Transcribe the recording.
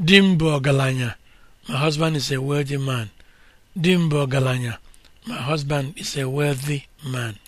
di m ọgaranya m my husband is a wealthy man